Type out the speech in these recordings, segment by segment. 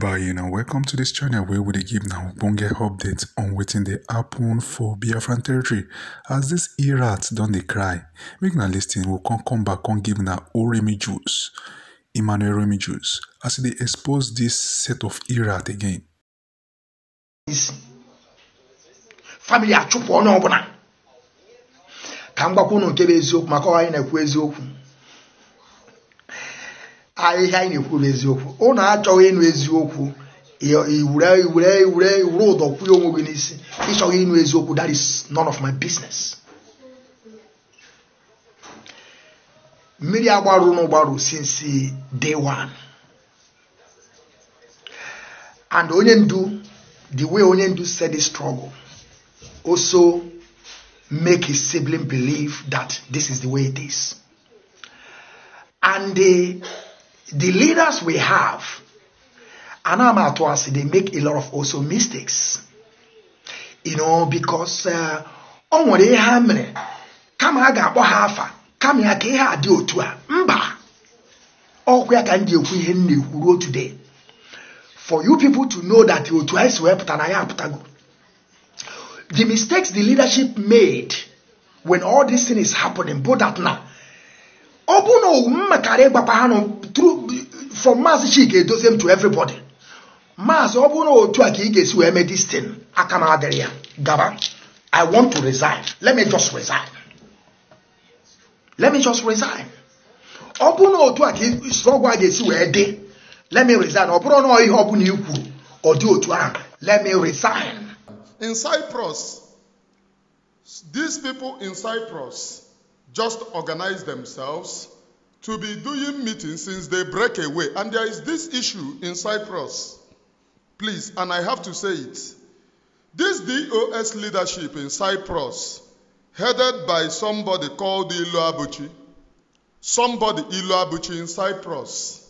everybody and welcome to this channel where we give now bonge updates on wetin the happen for biafran territory as this irats don dey cry make now listing will come come back on give na oremi juice, emmanuel oremi juice as they expose this set of irat again family achụpụ ọnụ ọbụla ka m gbakwa unu nke bụ eziokwu maka ọha anyị na-ekwu eziokwu ahịhịa anyị na-ekwuru eziokwu ụnụ achọghị ịnụ eziokwu iwure iwure iwure iwure ụdọ kwụnye onwe gị n'isi ịchọghị ịnụ eziokwu that is none of my business mmiri agbarụ ụnụ since day one and onye ndu the way onye ndu said this struggle also make his sibling believe that this is the way it is and the the leaders we have, I I'm at once, they make a lot of also mistakes. You know, because uh, ọ nwere ihe a mere kama a ga-akpọ ha afa kama ya ka ihe a dị mba ọkwa ya ka m today for you people to know that otu anyị si wee pụta the mistakes the leadership made when all this thing is happening bụ that now ọ bụ na owu m makara ịgbakwa ha nụ from maazị Chika edozie m to everybody maazị ọ bụ na otu a ka ị ga-esi wee mee this aka m adịrị ya gaba I want to resign let me just resign let me just resign ọ bụ na otu a ka ọgwụ a ga-esi wee dị let me resign ọ bụrụ na ihe ọ bụla i kwuru ọ dị otu ahụ let me resign in Cyprus these people in Cyprus just organize themselves to be doing meetings since they break away. And there is this issue in Cyprus. Please, and I have to say it. This DOS leadership in Cyprus, headed by somebody called Ilo Abuchi, somebody Ilo Abuchi in Cyprus,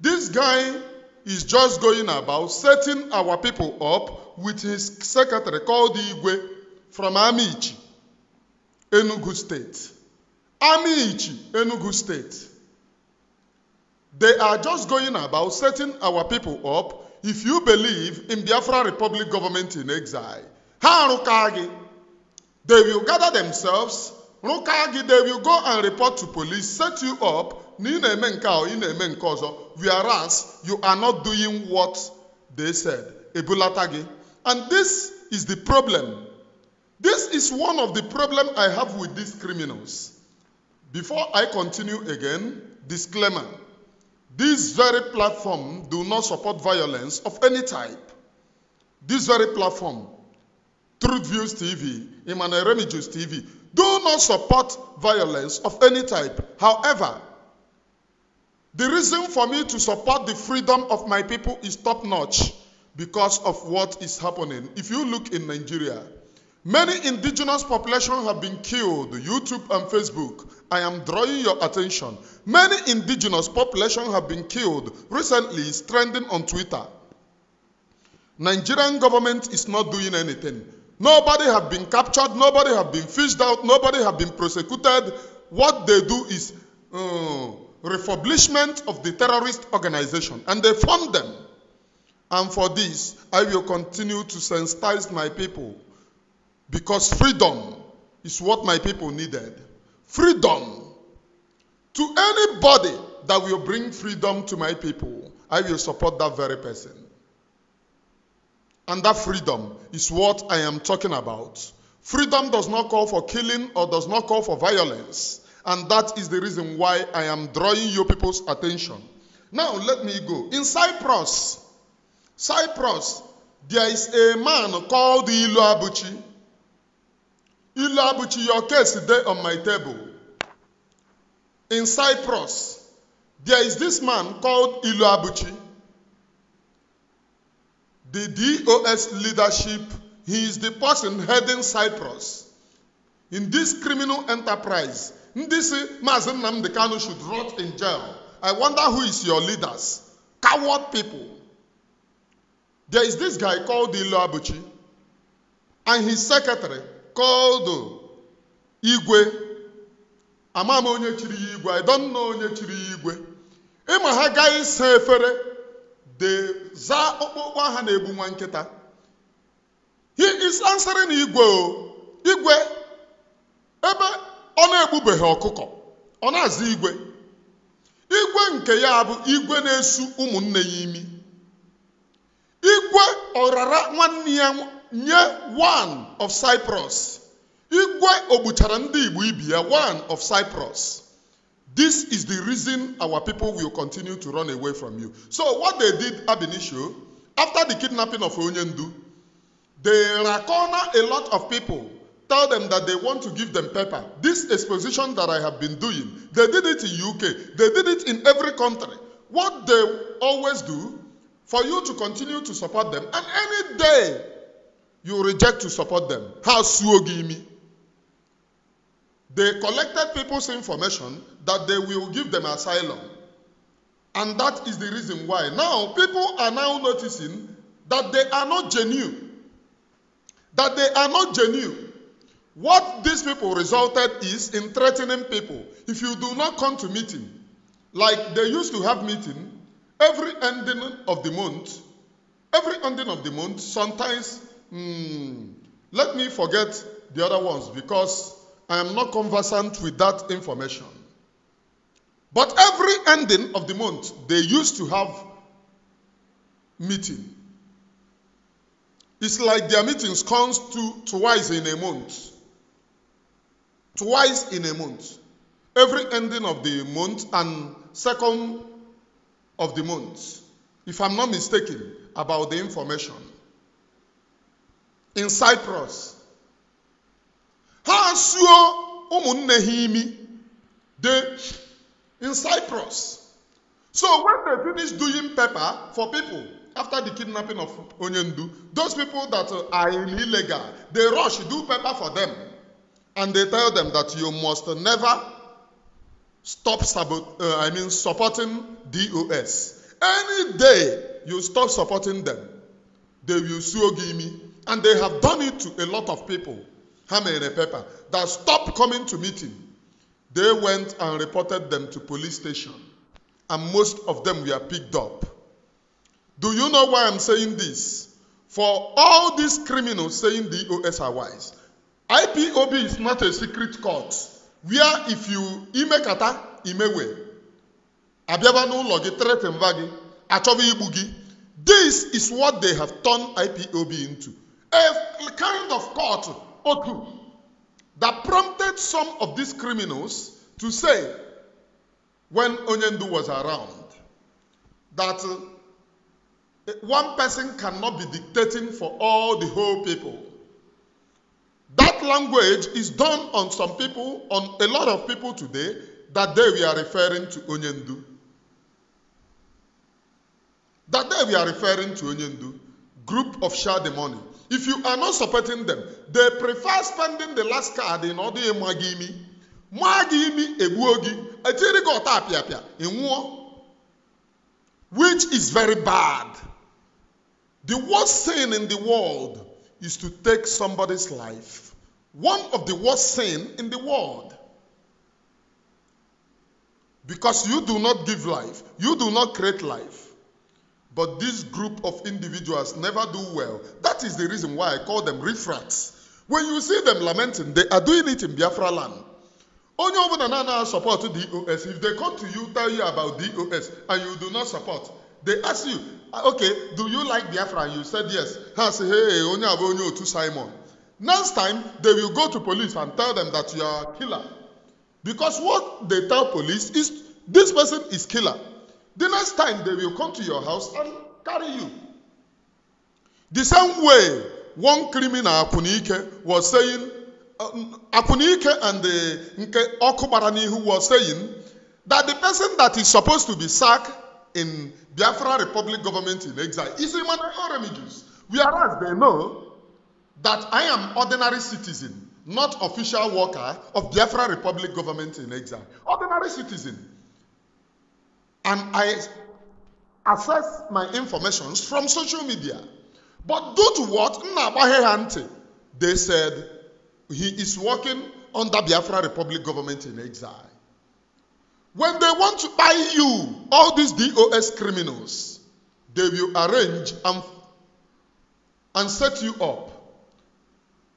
this guy is just going about setting our people up with his secretary called Igwe from Amici, Enugu State. Amiichi, Enugu State. They are just going about setting our people up if you believe in Biafra Republic government in exile. Ha Rukagi. They will gather themselves. Rukagi, they will go and report to police, set you up. Whereas you are not doing what they said. Ebulatagi. And this is the problem. This is one of the problem I have with these criminals. Before I continue again, disclaimer. This very platform do not support violence of any type. This very platform, Truth Views TV, Emmanuel Remigius TV, do not support violence of any type. However, the reason for me to support the freedom of my people is top-notch because of what is happening. If you look in Nigeria, Many indigenous population have been killed. YouTube and Facebook. I am drawing your attention. Many indigenous population have been killed. Recently, trending on Twitter. Nigerian government is not doing anything. Nobody have been captured. Nobody have been fished out. Nobody have been prosecuted. What they do is uh, refurbishment of the terrorist organization, and they fund them. And for this, I will continue to sensitize my people because freedom is what my people needed. Freedom. To anybody that will bring freedom to my people, I will support that very person. And that freedom is what I am talking about. Freedom does not call for killing or does not call for violence. And that is the reason why I am drawing your people's attention. Now, let me go. In Cyprus, Cyprus, there is a man called Ilu Abuchi. Ilu Abuchi, your case today on my table. In Cyprus, there is this man called Ilu Abuchi. The DOS leadership, he is the person heading Cyprus. In this criminal enterprise, this Mazen Namdekano should rot in jail. I wonder who is your leaders. Coward people. There is this guy called Ilu Abuchi and his secretary kọdụ igwe ama m onye chiri ya igwe I don't know onye chiri ya igwe ịma ha gaghị sa efere za ọkpụkpụ aha na-egbu nwa nkịta he is answering igwe o igwe ebe ọ na-egbubeghị ọkụkọ ọ na-aza igwe igwe nke ya bụ igwe na-esu ụmụnne ya imi igwe ọrara nwanne ya nye one of Cyprus. Igwe ogbuchara ndị Igbo ibi ya one of Cyprus. This is the reason our people will continue to run away from you. So what they did ab after the kidnapping of Onyendu, they corner a lot of people, tell them that they want to give them paper. This exposition that I have been doing, they did it in UK, they did it in every country. What they always do, for you to continue to support them, and any day you reject to support them. How suogimi? They collected people's information that they will give them asylum. And that is the reason why. Now, people are now noticing that they are not genuine. That they are not genuine. What these people resulted is in threatening people. If you do not come to meeting, like they used to have meeting every ending of the month, every ending of the month, sometimes Hmm. Let me forget the other ones because I am not conversant with that information. But every ending of the month, they used to have meeting. It's like their meetings comes to twice in a month. Twice in a month. Every ending of the month and second of the month. If I'm not mistaken about the information in Cyprus. Ha suo ụmụnne ha imi they in Cyprus. So when they finish doing paper for people after the kidnapping of Onyendu, those people that are illegal, they rush do paper for them, and they tell them that you must never stop sabot- uh, I mean supporting DOS. Any day you stop supporting them, they will sue me. And they have done it to a lot of people. That stopped coming to meeting. They went and reported them to police station. And most of them were picked up. Do you know why I'm saying this? For all these criminals saying DOS are wise, IPOB is not a secret court where if you imekata imewe abịaba this is what they have turned IPOB into a kind of court or that prompted some of these criminals to say, when Onyendu was around, that uh, one person cannot be dictating for all the whole people. That language is done on some people, on a lot of people today, that day we are referring to Onyendu. That day we are referring to Onyendu, group of Shah money. If you are not supporting them, they prefer spending the last card in order to give me. Magi me ebuogi, a jirigo tapiapia, in war, which is very bad. The worst sin in the world is to take somebody's life. One of the worst sin in the world. Because you do not give life, you do not create life. But this group of individuals never do well. That is the reason why I call them refracts. When you see them lamenting, they are doing it in Biafra land. Only over the Nana support DOS. If they come to you, tell you about DOS, and you do not support, they ask you, ah, okay, do you like Biafra? And you said yes. I say, hey, only have only to Simon. Next time, they will go to police and tell them that you are a killer. Because what they tell police is this person is killer. The next time they will come to your house and carry you. The same way one criminal, Apunike, was saying, um, Apunike and the Nke Okubarani, who was saying that the person that is supposed to be sacked in Biafra Republic government in exile is Emmanuel are Whereas they know that I am ordinary citizen, not official worker of Biafra Republic government in exile. Ordinary citizen and I access my information from social media. But due to what? They said he is working under Biafra Republic government in exile. When they want to buy you, all these DOS criminals, they will arrange and, and set you up.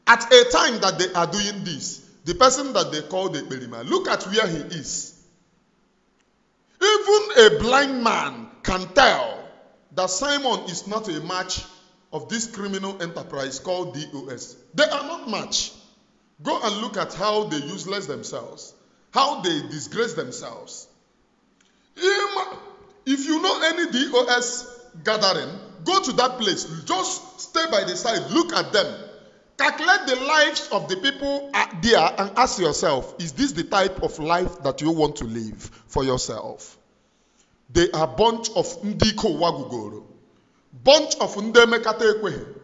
At a time that they are doing this, the person that they call the Belima, look at where he is. Even a blind man can tell that Simon is not a match of this criminal enterprise called DOS. They are not match. Go and look at how they useless themselves, how they disgrace themselves. If you know any DOS gathering, go to that place. Just stay by the side, look at them. Calculate the lives of the people there and ask yourself is this the type of life that you want to live for yourself? They are bunch of ndiko wagugoro, bunch of ndị emekata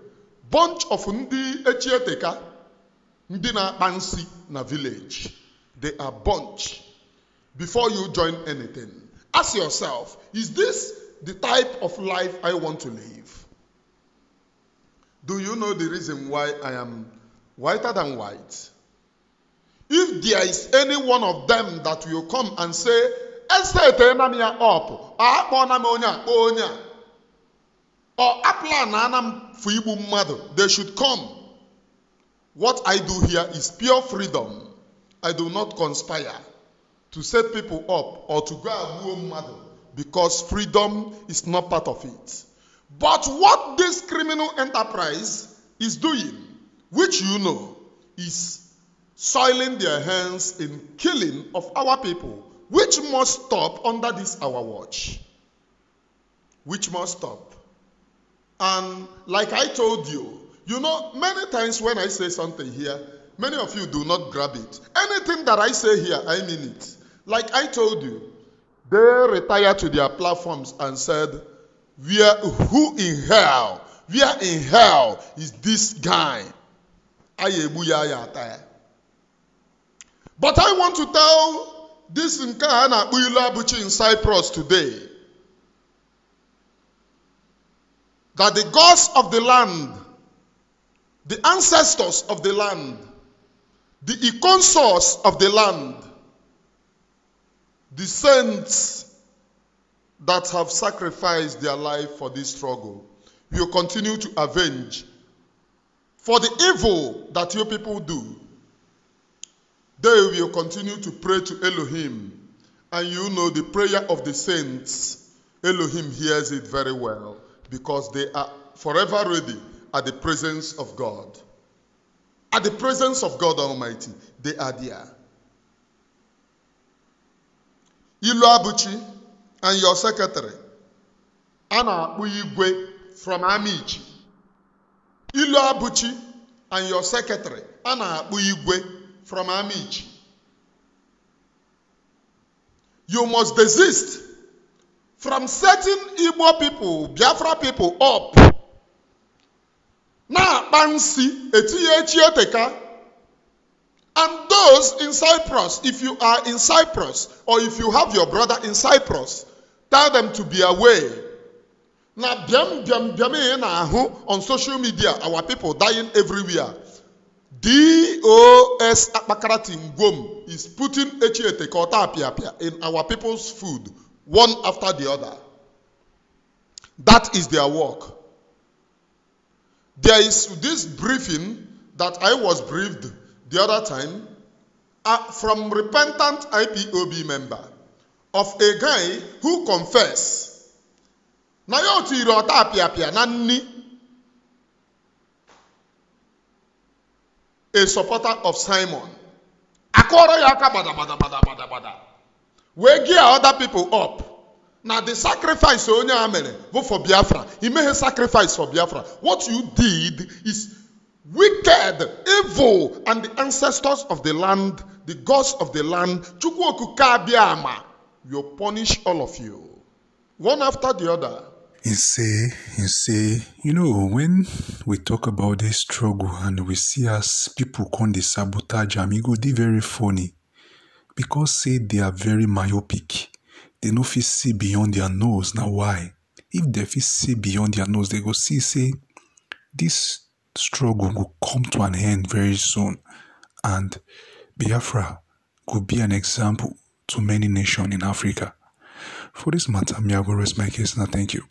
bunch of ndị echieteka, ndị bansi na village. They are bunch. Before you join anything, ask yourself is this the type of life I want to live? Do you know the reason why I am whiter than white? If there is any one of them that will come and say, esetena m ya up akpọna m onye or aplan ana m for igbu they should come what i do here is pure freedom i do not conspire to set people up or to go and mother because freedom is not part of it but what this criminal enterprise is doing, which you know, is soiling their hands in killing of our people, which must stop under this our watch. Which must stop. And like I told you, you know, many times when I say something here, many of you do not grab it. Anything that I say here, I mean it. Like I told you, they retired to their platforms and said, where who in hell? Where in hell is this guy? But I want to tell this Nkana Uyulabuchi in Cyprus today that the gods of the land, the ancestors of the land, the econsors of the land, the saints that have sacrificed their life for this struggle will continue to avenge for the evil that your people do. They will continue to pray to Elohim. And you know the prayer of the saints, Elohim hears it very well because they are forever ready at the presence of God. At the presence of God Almighty, they are there. Ilu Abuchi, and your secretary Anna, na from Amichi Ilu Abuchi and your secretary Anna, na from Amichi you must desist from setting Igbo people Biafra people up na-akpa nsi eteka and those in Cyprus if you are in Cyprus or if you have your brother in Cyprus Tell them to be away. Now, biam biam biam eh, on social media, our people dying everywhere. DOS Akpakaratin Gom, is putting HET Kota in our people's food, one after the other. That is their work. There is this briefing that I was briefed the other time uh, from repentant IPOB member of a guy who confess na ya otu iri ọta apịapịa na a supporter of simon akọrọ bada bada bada, we gear other people up na the sacrifice onye a amele bụ for biafra a sacrifice for biafra what you did is wicked evil and the ancestors of the land the gods of the land chukwu okuke will punish all of you, one after the other. And say, and say, you know, when we talk about this struggle and we see us people come the sabotage am, e very funny because say they are very myopic. They no fit see beyond their nose. Now why? If they fit see beyond their nose, they go see say this struggle will come to an end very soon and Biafra could be an example to many nations in Africa. For this matter, I'm my case. and thank you.